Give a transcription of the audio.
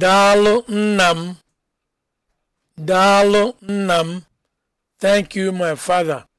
Daalụ nnam Daalụ Thank you, my father.